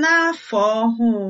na-afọ ọhụụ.